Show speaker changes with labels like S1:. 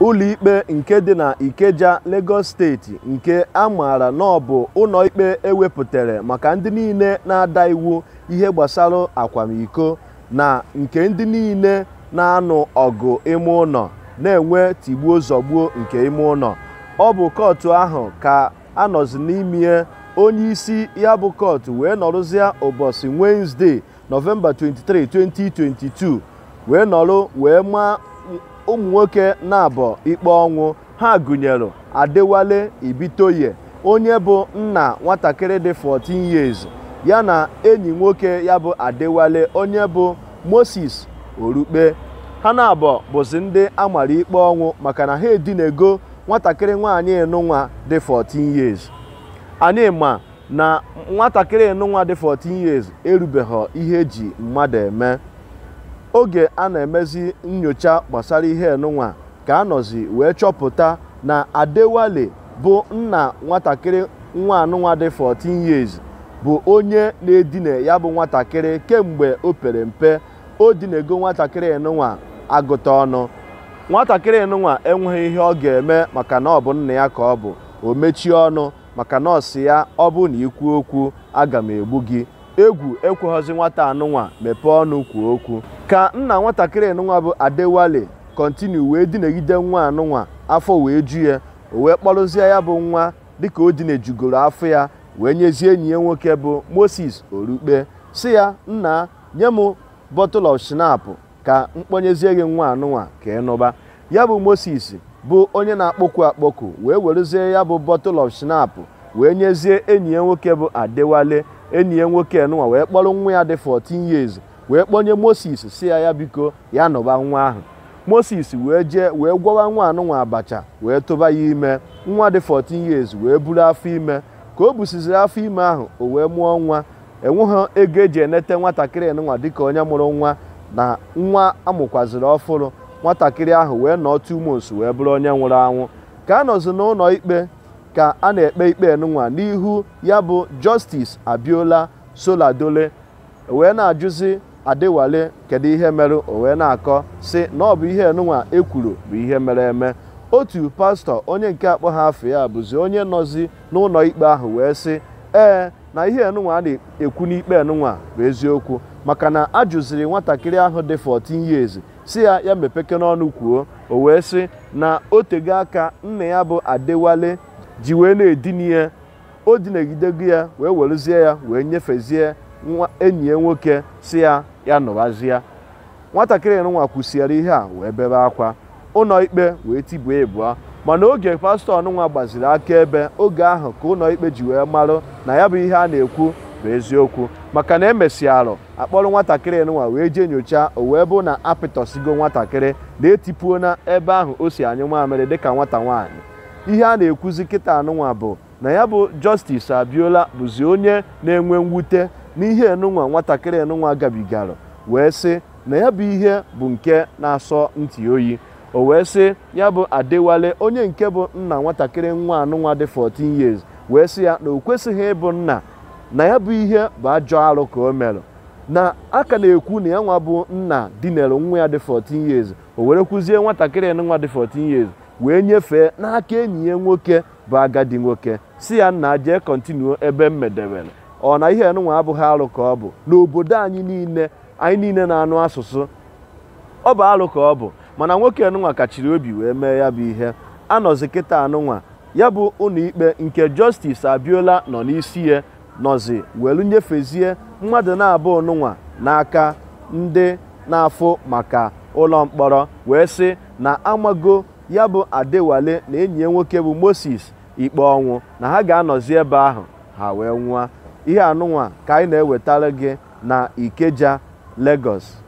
S1: ụlọikpe nke dị na Ikeja Lagos steeti nke a maara na ọ ụlọikpe ewepụtara maka ndị niile na-ada iwu ihe gbasara akwamiko na nke ndị niile na-anụ ọgụ ime ụlọ na-enwe tigbuo zọgbuo nke ime ụlọ ọ bụ kootu ahụ ka anọzi nọzi n'ime onye isi ya bụ kootu wee nọrụzie ụbọchị Nọvemba 23 2022 wee nọrụ wee maa ụmụ nwoke na-abọ ikpe ọnwụ ha gụnyere Adewale Ibitoye onye bụ nna nwatakịrị dị 14 years ya na enyi nwoke ya bụ Adewale onye bụ Moses Orukpe ha na-abọ bụzi ndị amara ikpe ọnwụ maka na ha edinego nwatakịrị nwaanyị nụnwa dị 14 years anyị ma na nwatakịrị nụnwa dị 14 years erubeghị ihe eji mmadụ eme oge a na-emezi nnyocha gbasara ihe enunwa ka a nọzi wee chọpụta na adewale bụ nna nwatakịrị nwa anụnwa dị 14 years bụ onye na-edina ya bụ nwatakịrị kemgbe o pere mpe o dinego nwatakịrị enunwa agụta ọnụ nwatakịrị nụnwa enweghị ihe ọ ga-eme maka na ọ bụ nna ya ka ọ bụ o mechie ọnụ maka na ọsị ya ọ bụ na ikwu okwu aga m egbu gị egwu ekweghọzi nwata anụnwa mepee ọnụ kwuo okwu ka nna nwatakịrị nwa bụ adewale kontinu wee dinegide nwa anụnwa afọ wee ju ya o wee kpọrụzie ya bụ nwa dịka o dinejugoro afọ ya wee nyezie enyi ya nwoke bụ moses orukpe si ya nna nye m bottle of shinap ka mkponyezie gị nwa anụnwa ka ị ya bụ moses bụ onye na-akpọku akpọku wee werezie ya bụ bottle of wee nyezie enyi ya nwoke bụ adewale enyi ya nwoke nụnwa wee kpọrọ nwa ya dị 14 years wee kpọnye moses si ya ya biko ya nụba nwa ahụ moses wee jee wee gwọwa nwa anụnwa abacha wee tụba ya ime nwa dị 14 years wee buru afọ ime ka o busiziri afọ ime ahụ o wee mụọ nwa enweghị ego eji enete nwatakịrị nwa dịka onye mụrụ nwa na nwa amụkwaziri ọfụrụ nwatakịrị ahụ wee nọọ tumos wee bụrụ onye nwụrụ anwụ ka a nọzi n'ụlọ ikpe ka a na-ekpe ikpe nwa n'ihu ya bụ justice abiola soladole wee na-ajụzi adịwale kedu ihe mere o wee na-akọ si na ọ bụ ihe enunwa ekwuru bụ ihe mere eme otu pastọ onye nke akpọ ha afọ ya bụzi onye nọzi n'ụlọ ikpe ahụ wee sị ee na ihe enunwa a na-ekwu n'ikpe enunwa bụ eziokwu maka na a jụziri nwatakịrị ahụ dị 14 years si ya ya mepeke n'ọnụ kwuo o wee sị na o tego aka nna ya bụ adewale ji wee na-edini ya o dinegidego ya wee werezie ya wee nyefezie nwa enyi ya nwoke si ya ya nụbazie nwatakịrị nwa kwụsịara ihe a wee bebe akwa ụlọ ikpe wee tibuo ịbụọ mana oge pastọ ọnụnwa gbaziri aka ebe oge ahụ ka ụlọ ikpe ji wee marụ na ya bụ ihe a na-ekwu bụ eziokwu maka na emesịarụ akpọrọ nwatakịrị nwa wee jee nyochaa o wee bụ na apịtọsigo nwatakịrị na etipuo na ebe ahụ o si anyụ mamịrị dịka nwata nwaanyị ihe a na-ekwuzi kịta anụnwa bụ na ya bụ justice abiola bụzi onye na-enwe mwute n'ihe enunwa nwatakịrị enunwa gabigara wee sị na ya bụ ihe bụ nke na-asọ ntị oyi o wee sị ya bụ adịwale onye nke bụ nna nwatakịrị nwa anụnwa dị 14 years wee sị ya na o kwesịghị ịbụ nna na ya bụ ihe bụ ajọ arụ ka o mere na aka na-ekwu na ya nwa bụ nna dinere nwa ya dị 14 years o were kwuzie nwatakịrị nwa dị 14 years wee nyefee n'aka enyi ya nwoke bụ agadi nwoke si ya nna jee kọntinu ebe m medewere ọ na ihe nụnwa abụghị alụ ka ọ bụ n'obodo anyị niile anyị niile na-anụ asụsụ ọ bụ alụ ka ọ bụ mana nwoke nụnwa kachiri obi wee mee ya bụ ihe anọzi kịta anụnwa ya bụ ụlọikpe ikpe nke Justice Abiola nọ n'isi ya nọzi welu nyefezie mmadụ na-abụ nụnwa n'aka ndị na-afụ maka ụlọ mkpọrọ wee sị na amago ya bụ Adewale na enyi ya nwoke bụ Moses ikpe ọnwụ na ha ga-anọzi ebe ahụ ha wee nwụọ ihe anụnwa ka anyị na-ewetara gị na Ikeja Lagos